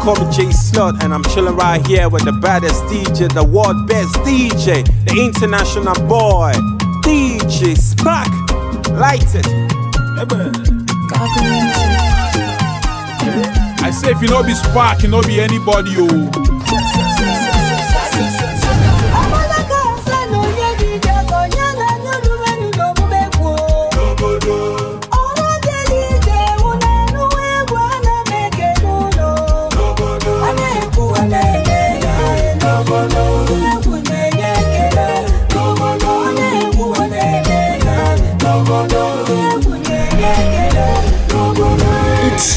call me jay Slut, and I'm chilling right here with the baddest DJ, the world best DJ, the international boy, DJ Spark. Light it. I say, if you know be Spark, you know be anybody, o. Oh.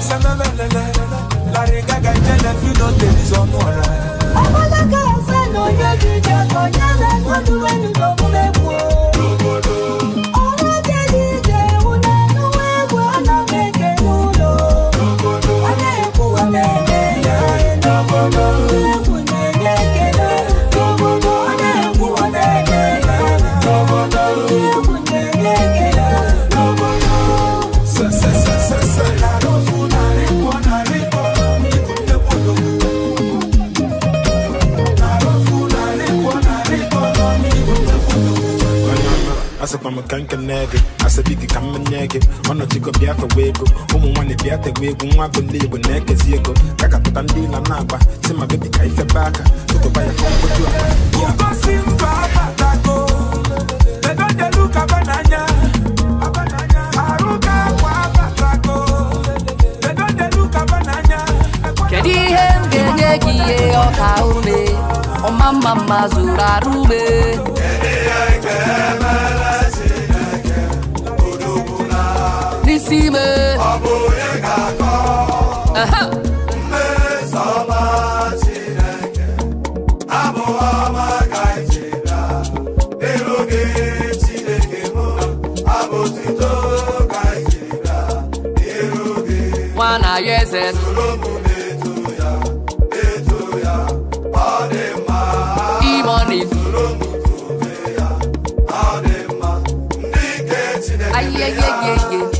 Ọbụla ka eze na onye dị ije ka onye na ka nke na-ege asabidi ka mmenye gị ọnọchiko bịa fewa ego ụmụ nwaanyị bịa tewa egwu nwa bụ ndị igbo na-ekezi ego kakapụta ndị ịla na-agba si ma bebi ka ifebe aka tụtụba ya ihe m ga-enye gị ihe ọka ume isi ime ọ bụ onye ga-akọ mmesoọma Chineke abụ ọma ka abụ otuto ka ọ dị mma ọ dị mma ndị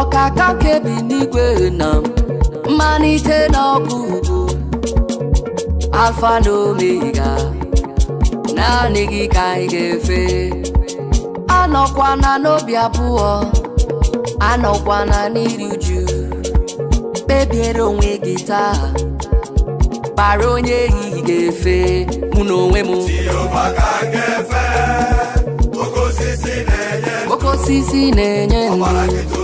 Ọka ọkaka kebi n'igwe na mmalite n'ọgụgụ alfa na omega naanị gị ka anyị ga-efe anọkwana n'obi abụọ anọkwana n'iri uju kpebiere onwe gị taa bara onye ehihie ga-efe mụ na onwe m okosisi osisi na-enye ndụ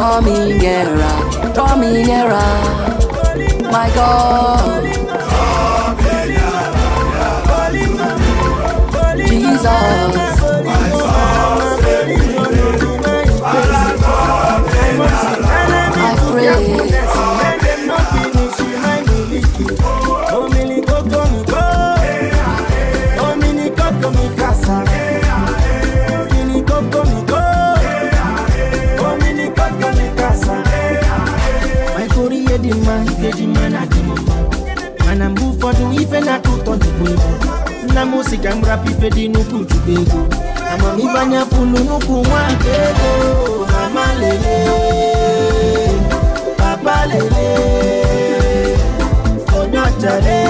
coming era, coming era, my God. Jesus. I pray. dị mma ikeji mma na mana mgbe ụfọdụ ife na-atọ ụtọ dịkwa ego nna m si ka m rapụ ife dị n'ukwu chukwu ego amamife anya pụlụ n'ukwu nwa nke ego mama lele papa lele onye ọcha lee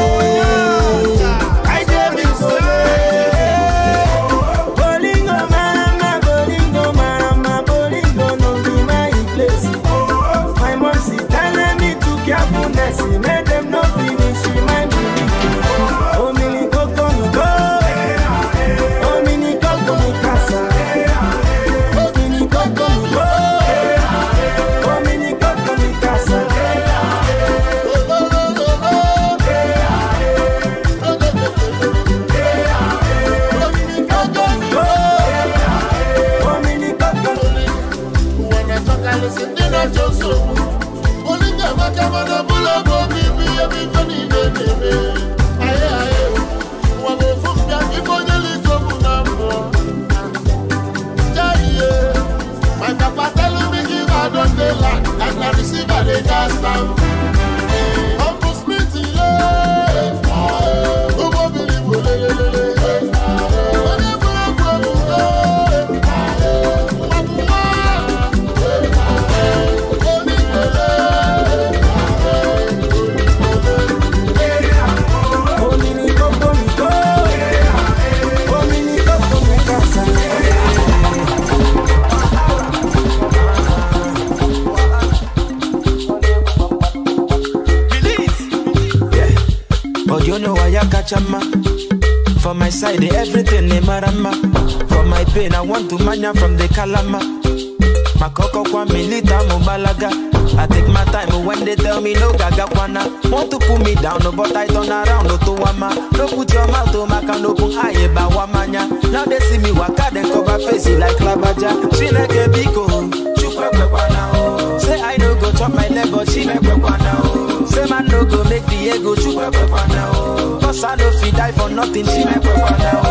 down no but i turn around no to wama no put your mouth to oh, maka no open eye ebe eh, awa manya now they see me waka dem cover face eh, like labaja chineke biko oh. chukwuekwekwana o oh. say i no go chop my leg but chinekwekwana o say man no go make the ego chukwuekwekwana o cause i no fit die for nothing chinekwekwana o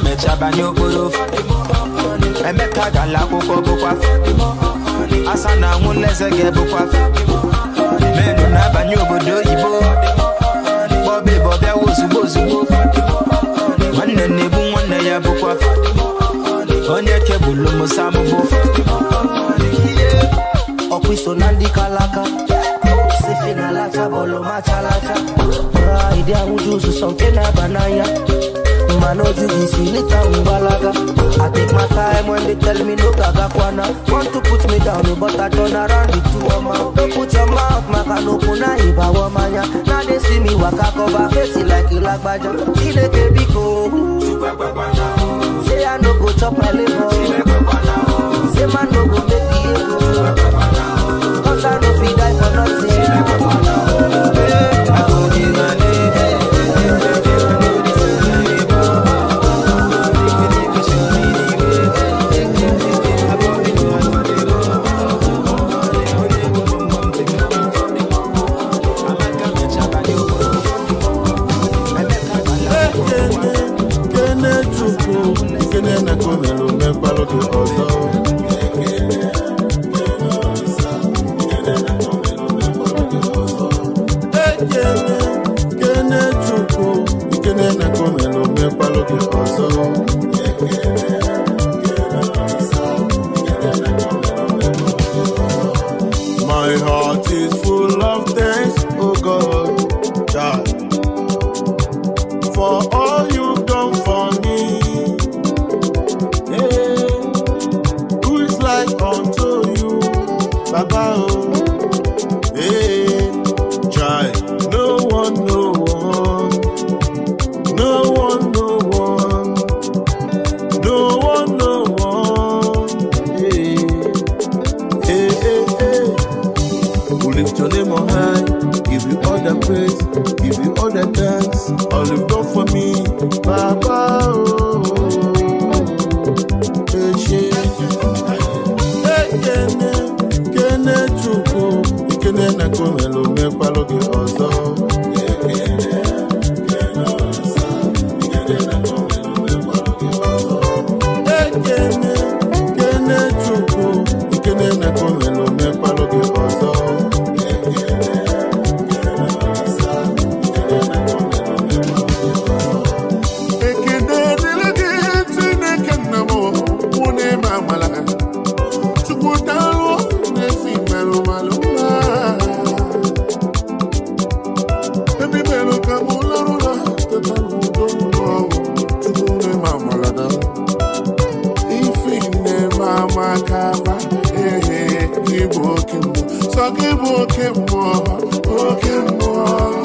Emeka banye n'okporo Emeka gara akwụkwọ bụkwa asa na anwụ n'eze ga-ebụkwa menu na-abanye obodo oyibo bọbị bọbịawa ozugbo ozugbo nwanne na ebu nwanne ya bụkwa onye kebụlụ musa mụbụ ọkụ iso na ndị kalaka sifi bọlụ macha lacha ụra ịdị ahụju ụzụzọ nke na-aba n'anya man no jiggy see me balaga I take my time when they tell me no gaga kwana Want to put me down but I turn around the two of my Don't put your mouth maka no kuna iba wamanya Now they see me waka cover face like you like baja Ile ke biko Say I no go chop my liver Say man no go make the emekpalụ gị ọzọ gị bụ oke mmụọ oke mmụọ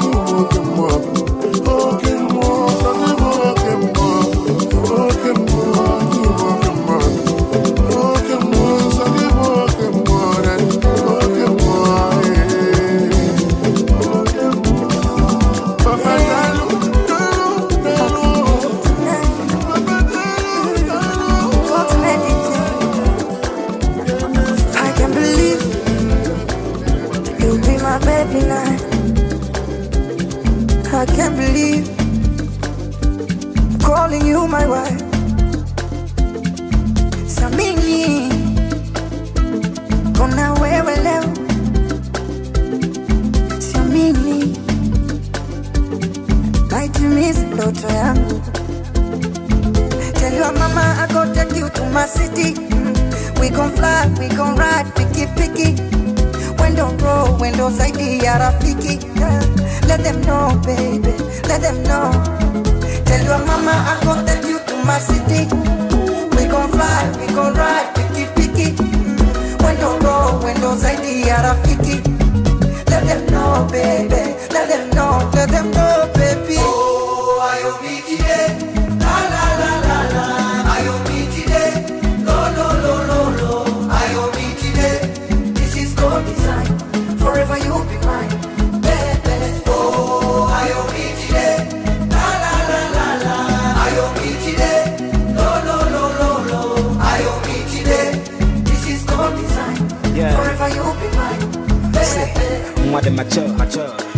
in my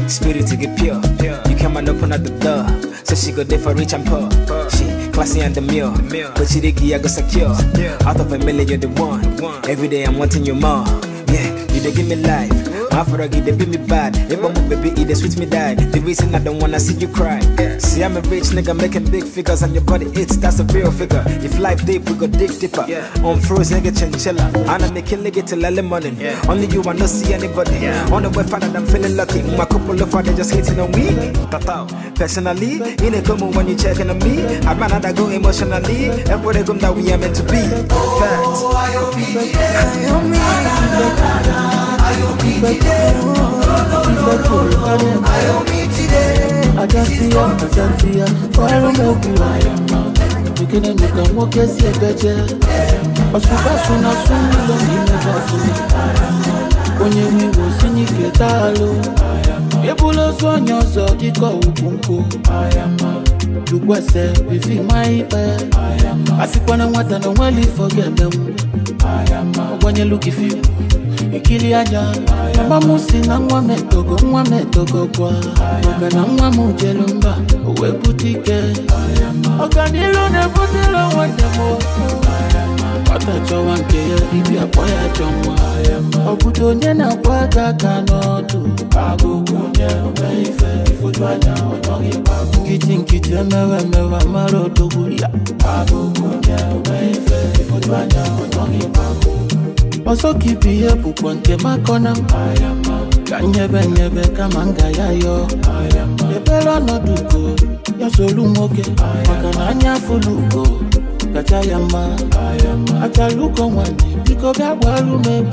Spirit to get pure. na You come and open at So she go there for rich and poor. She classy and the meal. But she I go secure. Out of a million, you're the one. Every day I'm wanting you more. Yeah, you they give me life. My froggy, be me bad. If I'm a baby, it e, sweet me die. The reason I don't wanna see you cry. See, I'm a rich nigga making big figures, and your body hits, that's a real figure. If life deep, we go dig deeper. On froze nigga chinchilla, and I'm making nigga till early morning. Only you, I see anybody. On the way, I'm feeling lucky. My couple of father just hating on me. Personally, in a come when you checking on me. I'm another go emotionally. Everybody come that we are meant to be. Ibe Ajantia, fire mogu Beginning you can eh, ya as a better Ọ̀ṣùgbà ṣùnà ṣùnà Onye mi wò sí ní kẹta ló Ebúlọ́ sọ́nyà sọ kíkọ́ ògùn kò Jùgbọ́ ẹsẹ̀ fífi máa ń pẹ́ Àsìkò ikiri aja mama m si na nwa m etogo nwa m gwa na nwa m jelu mba o wee bute ike ọganilu na-ebutere onwe dem nwata chọwa nke ya ibi kpọ ya chọ nwa ọbụdo onye na-akwa aka aka n'ọdụ nkịtị nkịtị emewe emewe mara odogwu ya ọsọ ka ihe bụkwa nke makọna m ka nyebe nyebe kama m ya yọọ ebere ọnọdụ ugo ya solu nwoke maka na anya afụlụ ugo kacha ya mma achara ụkọ nwanyị biko bịa gbaru m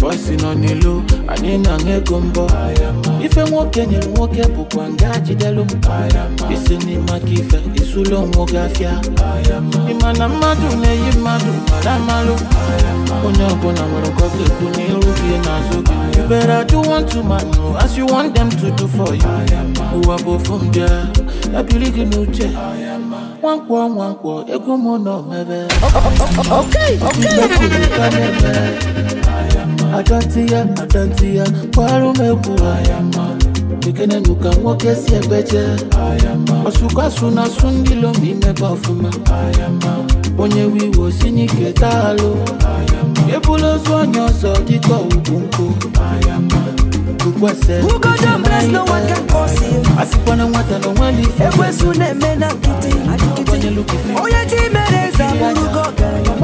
bọsi nọ n'ilo anyị na ego mbọ ife nwoke nyere nwoke bụkwa nga jidelu m isi n'ime aka ife esulo nwoke afịa ịmana mmadụ na-eyi mmadụ mara amalụ onye ọbụla nwere nkọ ga-ekwu n'iru gị n'azụ gị you better do one unto man as you want them to do for you ụwa bụ ofu ndị a gị n'uche nwankwọ nwankwọ ego m nọ mebe adọtị ya adọtị ya kwarụ m egwu ekenenuka nwoke si egbeje ọsụkwasụ na asụ ndị lomi imebe ọfụma onye wiwo si n'ike taalụ ebula ozu onye ọzọ dịka ugwu nkụ asịkwana nwata na onweli ekwesu na-eme na nkịtị onye mere eze abụrụgo ọgaranya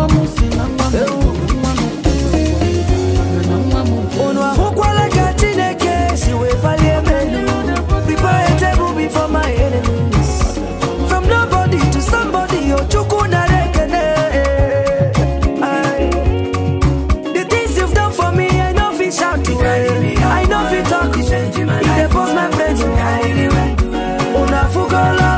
color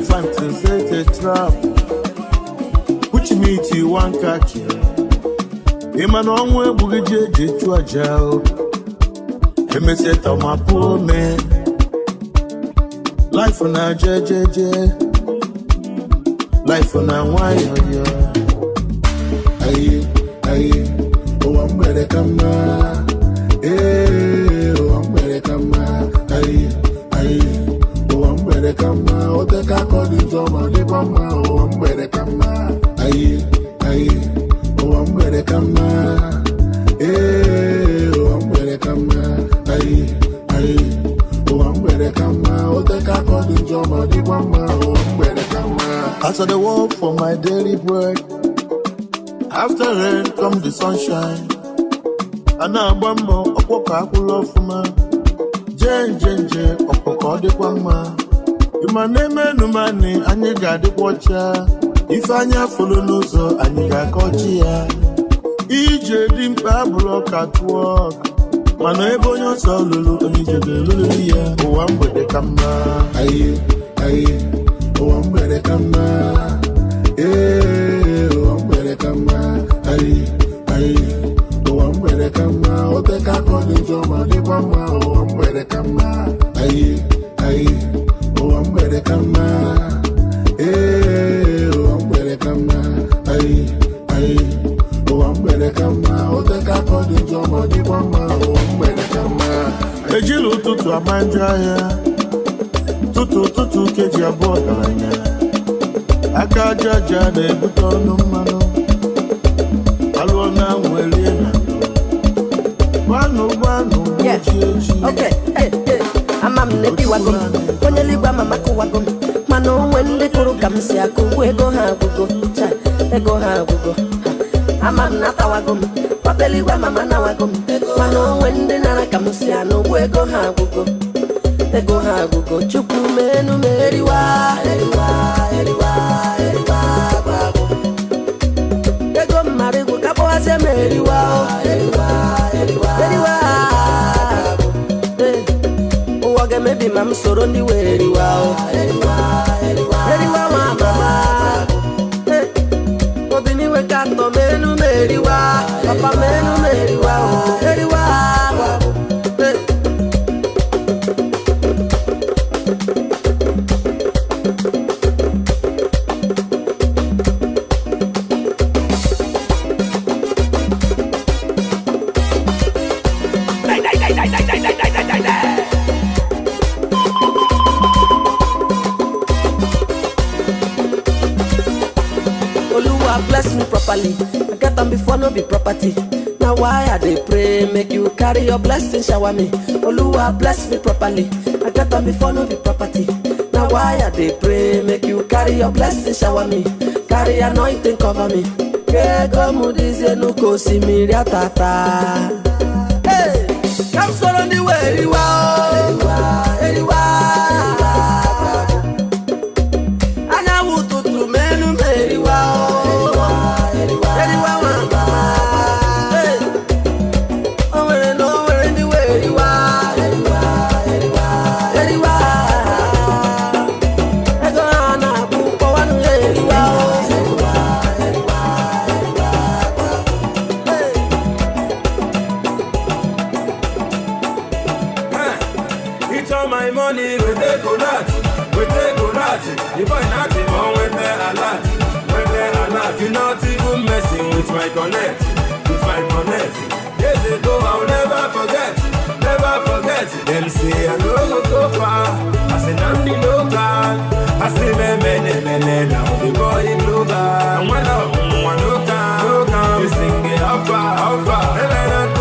elephant and set a trap which meat you want catch ma na ọnwụ egbughị ji eji chụọ aja emesịa tọmapụ life na jejeje life na aye aye oh, mgbede As I dey work for my daily bread, after rain come the sunshine. A na-agba mbọ ọkpọkọ akwụrụ ọfụma, jee nje nje ọkpọkọ dịkwa mma. Ịmana emenu mani anyị ga-adịkwa ọcha, ife anyị afụlụ n'ụzọ anyị ga-akọ ya. Ije dị mkpa abụrụ ọka mana ebe onye ọsọ lụrụ onye ije ya ụwa mgbede ka mma. ọ dị njọ ejila ụtụtụ ama ahịa tụtụ abụọ aka aja aja na-ebute ọnụ mmanụ alụọ na nwelie na gbanụ gbanụ eji eji e, ama m na-ebiwago m onye eluigwe ama m akụwago m mana onwe ndị kụrụ ka m si akụ ngwa ego ha agwụgo ego ha agwụgo ama m na-atawago m ọba eluigwe ama m anawago m mana onwe ndị nara ka m si anụ ụgbọ ego ha agwụgo ego ha agwụgo, chukwu menu m eriwa eriwa eriwa dị ma m soro ndị weriwa carry your blessing shower me oluwa bless me properly i get on before no be property na why i dey pray make you carry your blessing shower me carry anointing cover me kegomudizie nuko osimiri atata hey, kam soro ndị were iwe o connect, if I connect, years ago I'll never forget, never forget. Them say I no go go far, I say I say me me me me me now the boy global. no no You sing it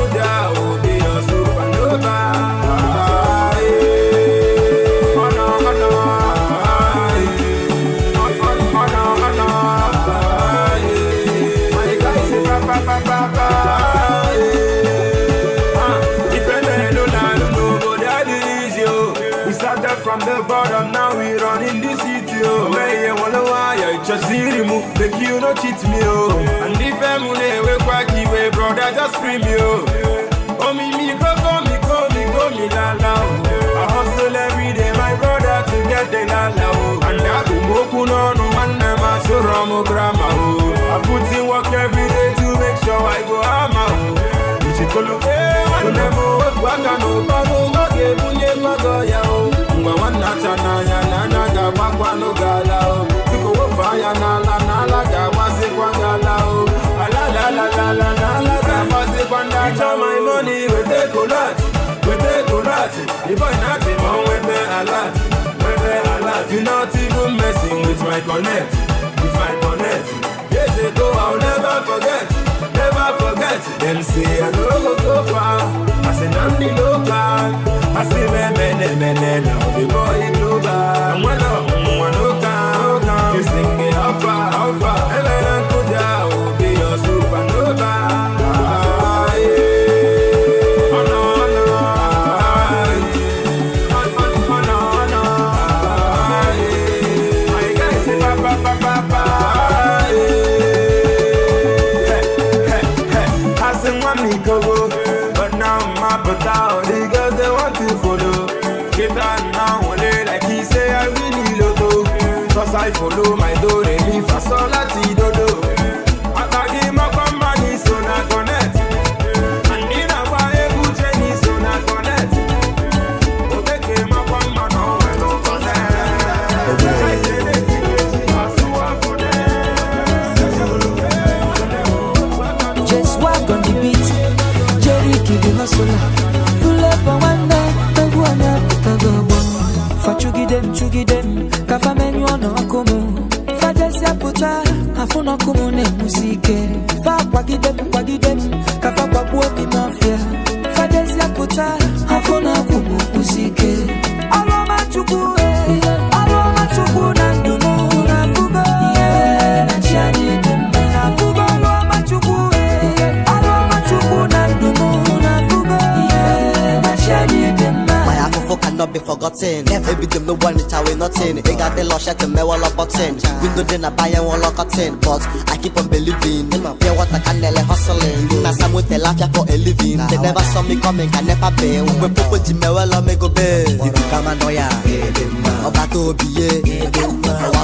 cheat me o oh. and ife m ewekwa iwe brother just free oh, me o me go me la la o oh. I hustle every my brother to get the la o and okwu n'ọnụ nwanne m asụrụ m grama o I put work every to make sure I go ah, eh, o Acha my money, wete kolat, wete kolat The boy nothing on wete alert, wete alert You not even messing with my connect, with my connect Years go I'll never forget, never forget Them say I no go go far, I say Namdi local I say me mene mene now the boy global And when I'm one local, you sing it how far, how far megide m ka fa menyụọ n'ọkụ m fa jesịa pụta afụ n'ọkụ m forgotten Every dem no one it away nothing They got the lush at the me wall button Window then I buy and But I keep on believing pure water can nearly hustling Even as I'm with the laugh for a living They never saw me coming can never pay When people di me well me go be noya Ọba tó biye Ọwa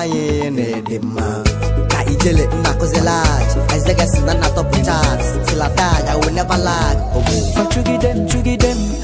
anyị na-ede mma ijele nna never lag. m m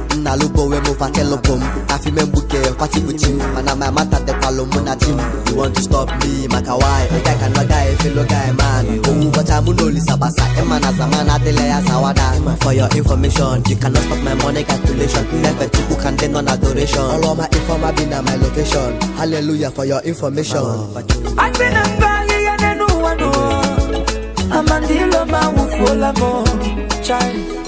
na alụbowe m fatelụ bụ m afi me mgbuke kwatibuchi m mana my mata dekwalụ mụ na jim m you want to stop me maka why ịga ka nọ guy fellow guy man owu bọcha mụ na olisa gbasa ịma na zaman adịla ya for your information you cannot stop my money calculation efe chukwu ka ndị nọ na adoration ọrụ ọma informa bi na my location hallelujah for your information asị na mba ahịhịa n'elu ụwa n'ụwa amandilo ma wụfuola chai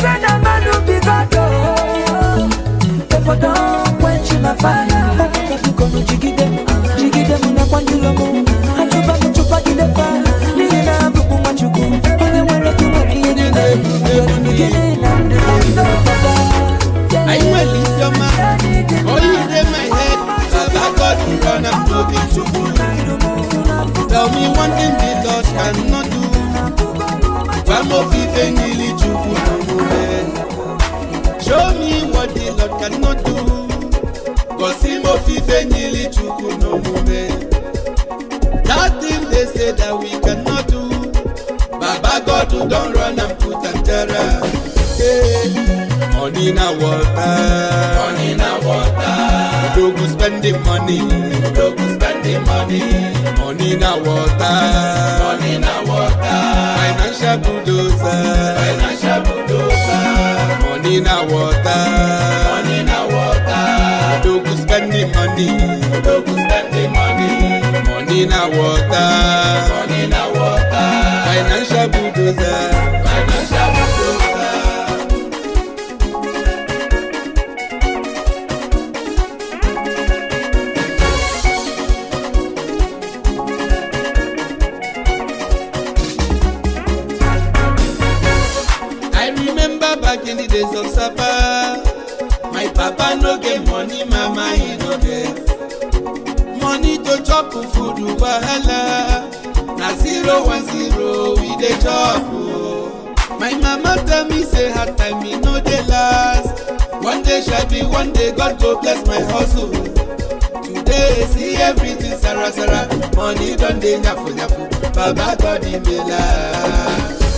friend of mine who be God. Therefore, oh. don't quench my fire. Kono jigide, jigide muna kwa njulomo Achuba mchupa na abubu Onye mwere kuwa kiye in my head Baba Tell me one thing the Lord cannot do I'm ofufe niile chukwu show me what the Lord cannot do gosi m ofufe niile chukwu na omume that thing they say that we cannot do baba God run put money water money water go plenty money. Money na water. Money na water. Financial bulldozer. Financial bulldozer. Money na water. Money na water. money. money. Money na water. Money na water. Financial bulldozer. Financial in the days of Saba. My papa no get money, mama he no get. Money to chop food wahala. Na zero one zero we dey chop. Oh. My mama tell me say her time e no dey last. One day shall be one day God go bless my hustle. Today see everything Sarah Sarah. Money don dey nyafu nyafu. Baba God dey me last.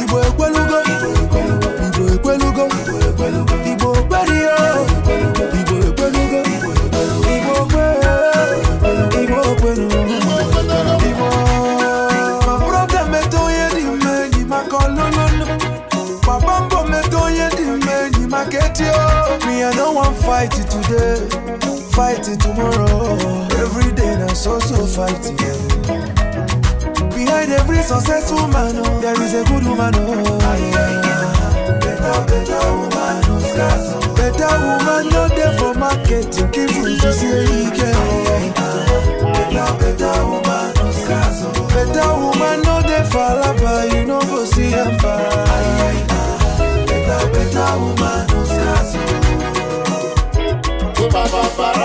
igbo ekwelugo igbo ekwelugo igbo ya igbo ekwelugo igbo igbo igbo onye dị mma enyi maka papa mbọ onye dị maka eti wan fight today fight tomorrow every na so so fight every successful man, oh, there is a good woman, oh, Better, woman, not there for market, give you to see it Better, woman, Better woman, not there for you know, go see Better, better woman,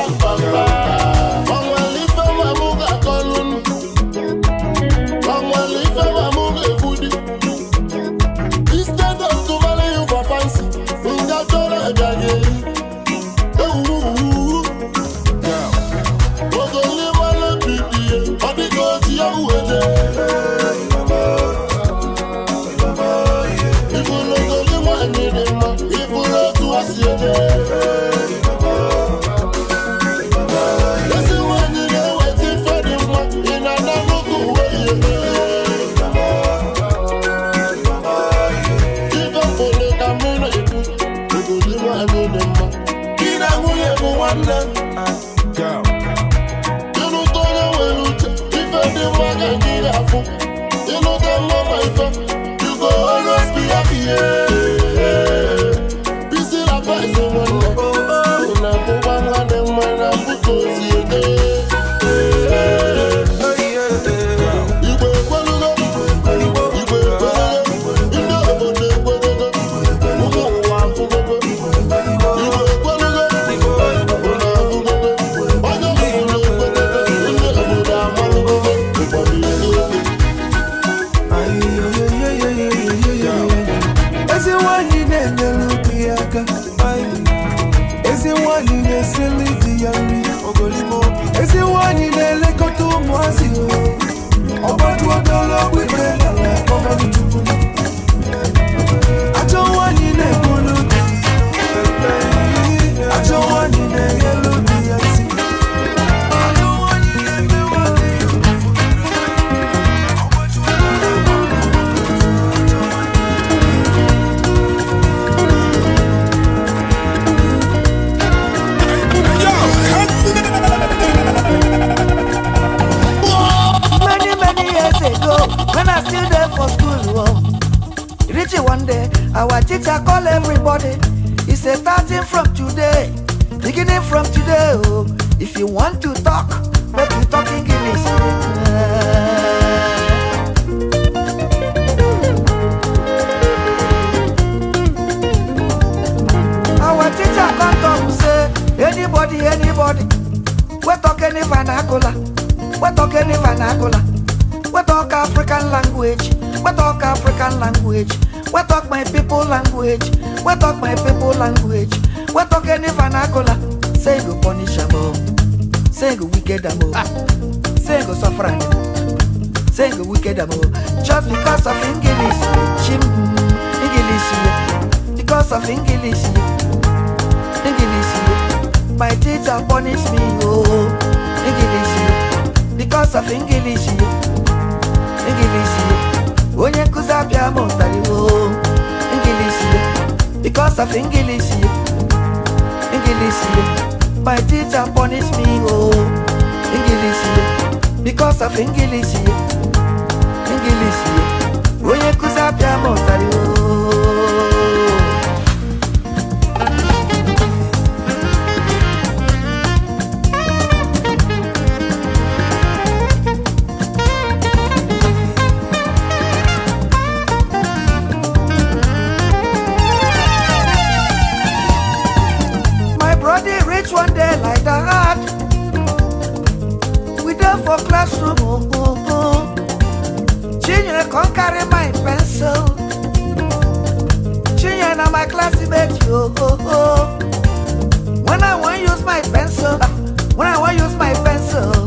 language, we talk African language, we talk my people language, we talk my people language, we talk any vernacular. Say go punish them all, oh. say go wicked them all, oh. say go suffer oh. say go wicked them all. Just because of English, chim, English, because of English, English, my teacher punish me, oh, English, because of English. ingilisi onye nkụzi abịa mụtara iwu ingilisi because of ingilisi ingilisi my teacher punish me o oh. ingilisi because of ingilisi ingilisi onye nkụzi abịa mụtara iwu classroom oh, Chinyere oh, oh. come carry my pencil Chinyere na my classmate oh oh, oh. When I wan use my pencil When I wan use my pencil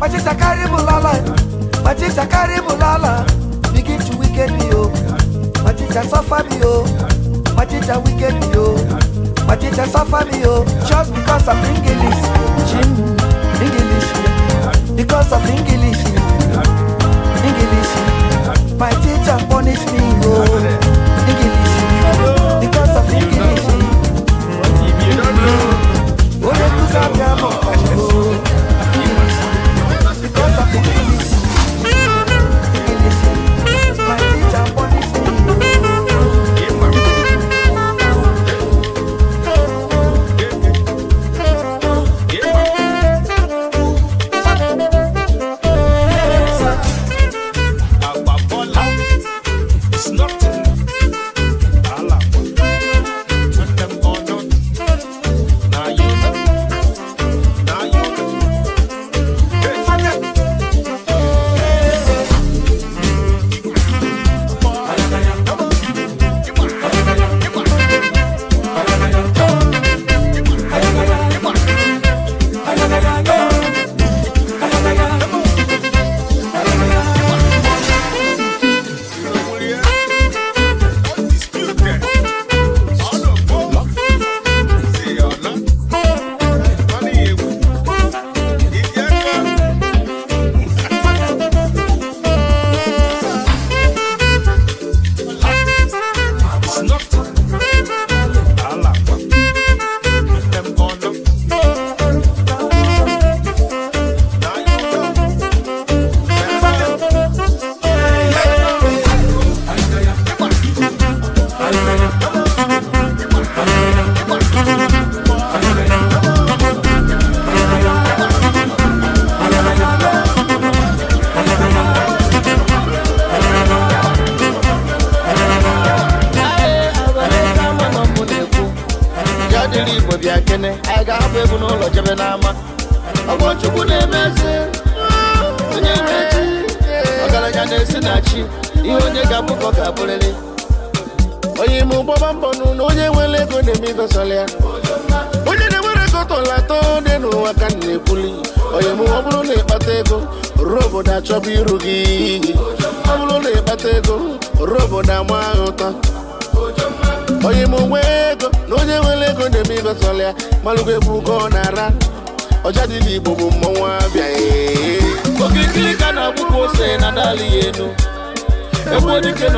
Machita carry bulala, machita carry Begin to wicked me oh, machita suffer me oh, machita wicked me oh, suffer me oh. Just because of English, Jim, English, because of English, English. My teacher punish me oh, English, because of English. Thank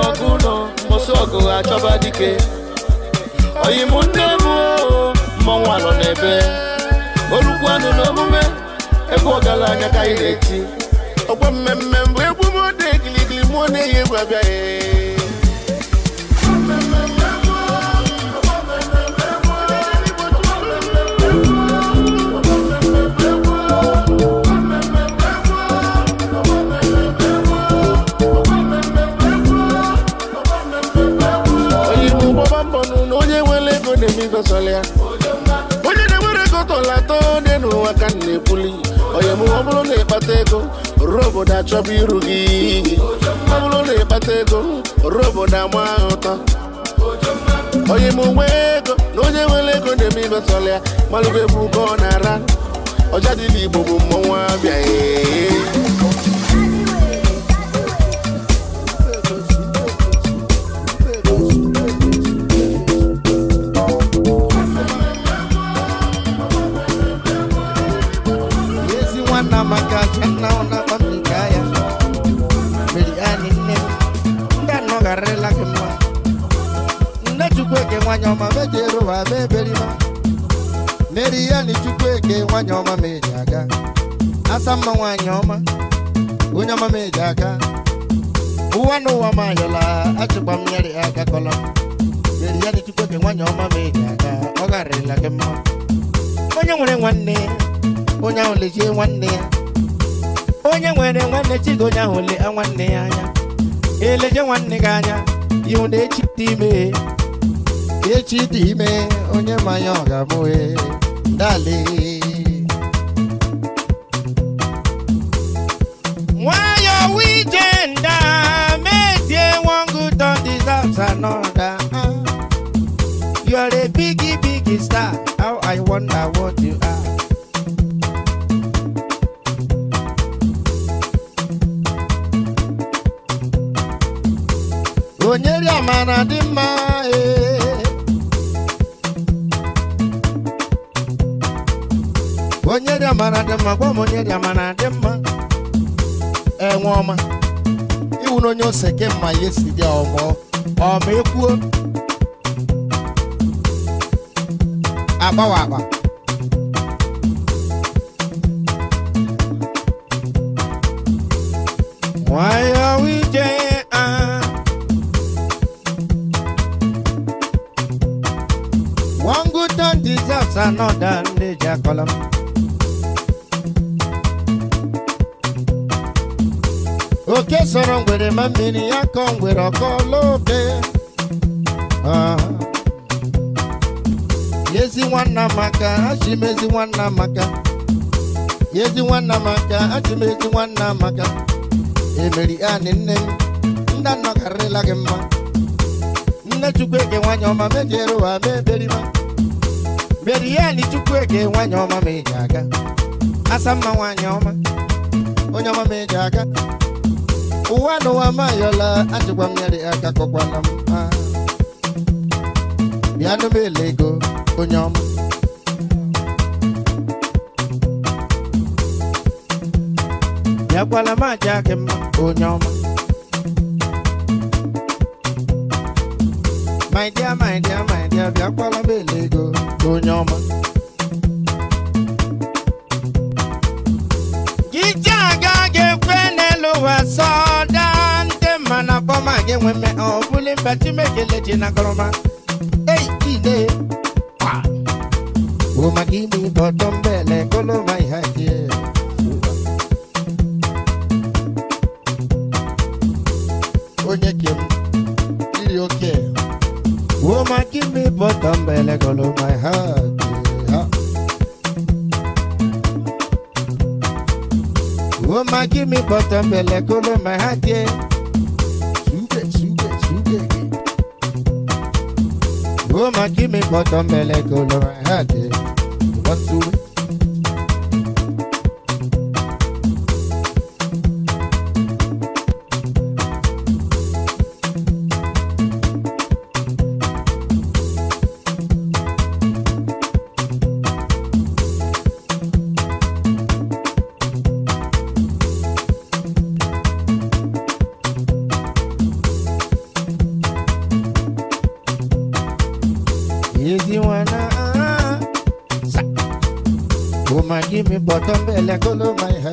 ọgụ mosu mbosi ọgụ achọba dike oyim nne bụ mmọnwụ anọ n'ebe olukwanụ na omume ebe ọgaranya ka anyị na-eti mmemme bụ egwu m ode mụọ na-eyi egwu abịaghị onye na-enwere ego tọla atọ dị n'ụwa ka na-ekwuli onye ọ bụrụ na ịkpata ego ruo obodo achọba iru gị ọ bụrụ na ịkpata ego ruo obodo ama ụtọ onye m onwe ego na onye nwere ego na-eme ifesọlị ya malụgo ebe ugo ọ na-ara ọja dị n'igbo bụ mmọnwụ abịaghị naona kwa mikaya miliani nne ndị anọgharịla gị mma nne chukwueke nwanyị ọma meji eru ụwa ma eberima meri ya na chukwueke nwanyị ọma ma eji aga asa mma nwanyị ọma onye ọma ma eji aga ụwa na ụwa m ayọla achịkwa m nyere ya aka kọlọ meri ya na chukwueke nwanyị ọma ma eji aga ọ mma onye nwere nwanne onye ahụ lejie nwanne ya onye nwere nwanne chido ya le nwanne ya anya eleje nwanne gị anya ihu na echi dị ime echi dị ime onye manya ọ ga-amụhe dale nwayọ metie one don deserves another you are a biggie biggie star how i wonder what you are amara dị mma eh. onye dị amara dị mma gwa m onye dị amara dị mma enwe eh, ọma iwu na onye ose ke mma ya esi dị ọgbọ ọma ekwuo agbawa agba oke sọrọ ngwere ma mmiri ya kọ ngwere ọkọ n'obe ah. yezi nwanna maka achimezi nwanna maka yezi nwanna maka achimezi nwanna maka emeri ani nne m nda nnọkarịla mma nne chukwu eke nwanyị ọma mejiere ụwa ma ihe Merieli Chukwueke nwanyị ọma ma ị eji aga Asa Asamma nwanyị ọma onye ọma ma ị eji aga ụwa n'ụwa ọla ajụkwa mmeri aka kọkwana m ah. bịa nụmele ego onye ọma bịakwala m aja gị mma onye ọma my dear my dear my dear aga ga-ekwe n'elu ụwa sọda ndị mana bọma gị nwe mme ọ bụli mba Chineke na gọrọma come by let my heart. Yeah. Oh my, give me bottom by go my heart, yeah. Sugar, sugar, sugar, yeah. Oh my, give me bottom by go my heart, yeah.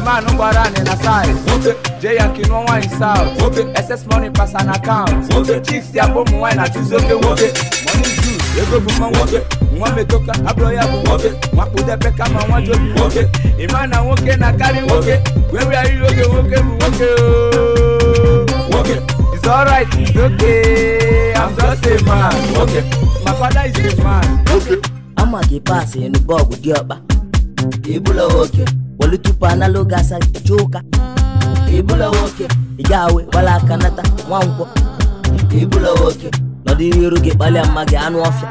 mmanụ gbara anị na saiz jay ya nke nụọ south ss money pasa na akaụntụ chiks ụmụ nwaanyị na oke nwoke money ego bụ mma nwoke ya bụ nwoke ịma nwoke na nwoke nwoke bụ nwoke it's alright it's okay i'm just a man my father is a man nwoke wali tupu anala oge asa jee ụka ebula nwoke kanata awe gbala aka nata nwankwọ ebula nwoke gị kpalịa mma gị anụ ọfịa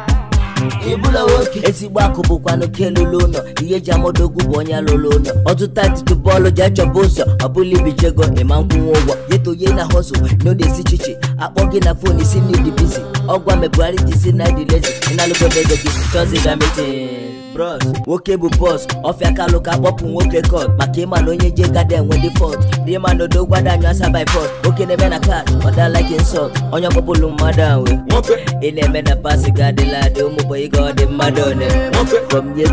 ebula nwoke ezigbo akụ bụkwa n'oke ụlọ ihe eji amadogwu bụ onye lụlụ ụlọ ọtụtụ atịtụ bọọlụ ji achọba ụzọ ọbụla ibijego ịma nkwụnwe ụgwọ yeto ye na hosụ n'ode chichi akpọ gị na fon isi n'idi bizi ọgwa na lezi bros nwoke bụ bọs ọfịa kalụ ka kpọpụ nwoke kọt maka ịma na onye je gada enwe dị fọt rima na odo gwada anyụ asa by fọt nwoke na-eme na kat ọdalike nsọt onye ọkpọpụlụ mmadụ anwe ị na-eme na pasị ga adịla adị ụmụbọ ịga ọ dị mmadụ one from ye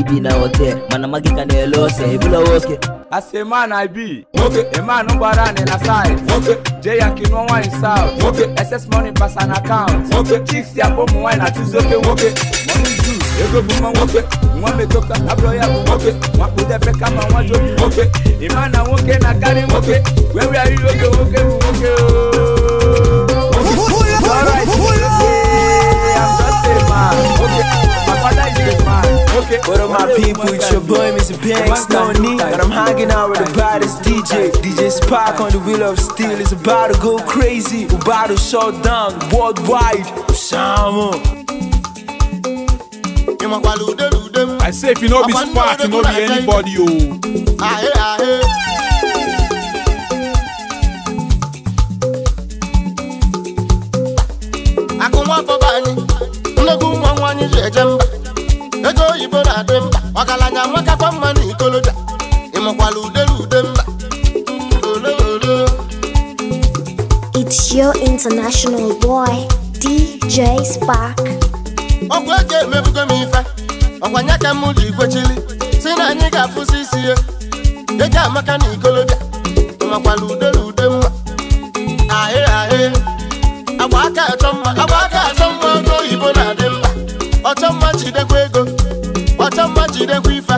ibi na hotel mana magị ka na-ele ọsọ ebula nwoke say man i be a man gbara anị na side jee yanki nụọ nwaanyị south excess money pass an account chicks ya bụ ụmụ nwaanyị na-achụzi oke nwoke ego bụ nwoke nwa metoka ya bụ nwoke kama nwa jobi nwoke ịma na nwoke na-akarị nwoke were arịrị oge nwoke What up, my people? It's your boy, Mr. Banks, no need. And I'm hanging out with the baddest DJ. DJ Spark on the wheel of steel is about to go crazy. to shut down worldwide. Osama. I say if you know be Spark, you know be anybody, yo. I come up for Ịga-onye ji eje mba ego oyibo na-adị mba ọgaranya nwekakwa mma na ikoloja ịmụkwala udere ude mba It's your international boy, DJ e emebugo m ife ọkwa nya ka m ji si na anyị ga-afụsi isi e amaka na ikoloja ịmakwala udere ude mma oyibo na ọcha mma jidekwa ego ọcha mma jidekwa ife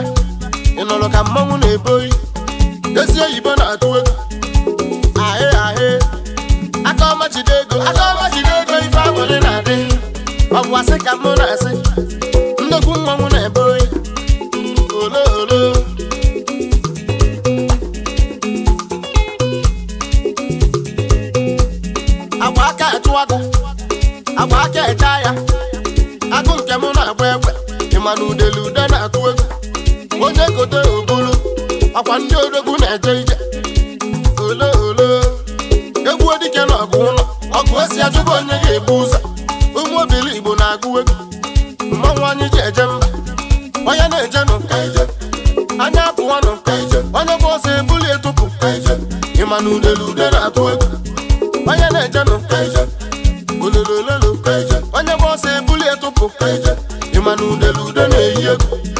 ị ka mmanwụ na-ebo oyi ezi oyibo na-atụ egwu ahị ahị aka ọma jide ego aka ọma jide ego ife agbụrị na-adị ọ bụ asị ka mụ na-asị gote obulu ọkwa ndị odogwu na-eje ije ole ole egwu dike na ọgụ ụlọ ọgụ esi onye ga-ebu ụzọ ụmụ obili igbo na-agụ egwu mmanwụ ji eje onye na-eje nụ anya apụwanụ onye ọsọ ebuli etụpụ ịma na ude na-atụ onye na-eje nụ na-eyi egwu